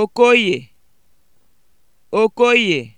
Okoye Okoye